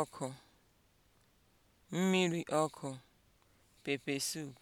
ọkụ mmiri ọkụ pepesoup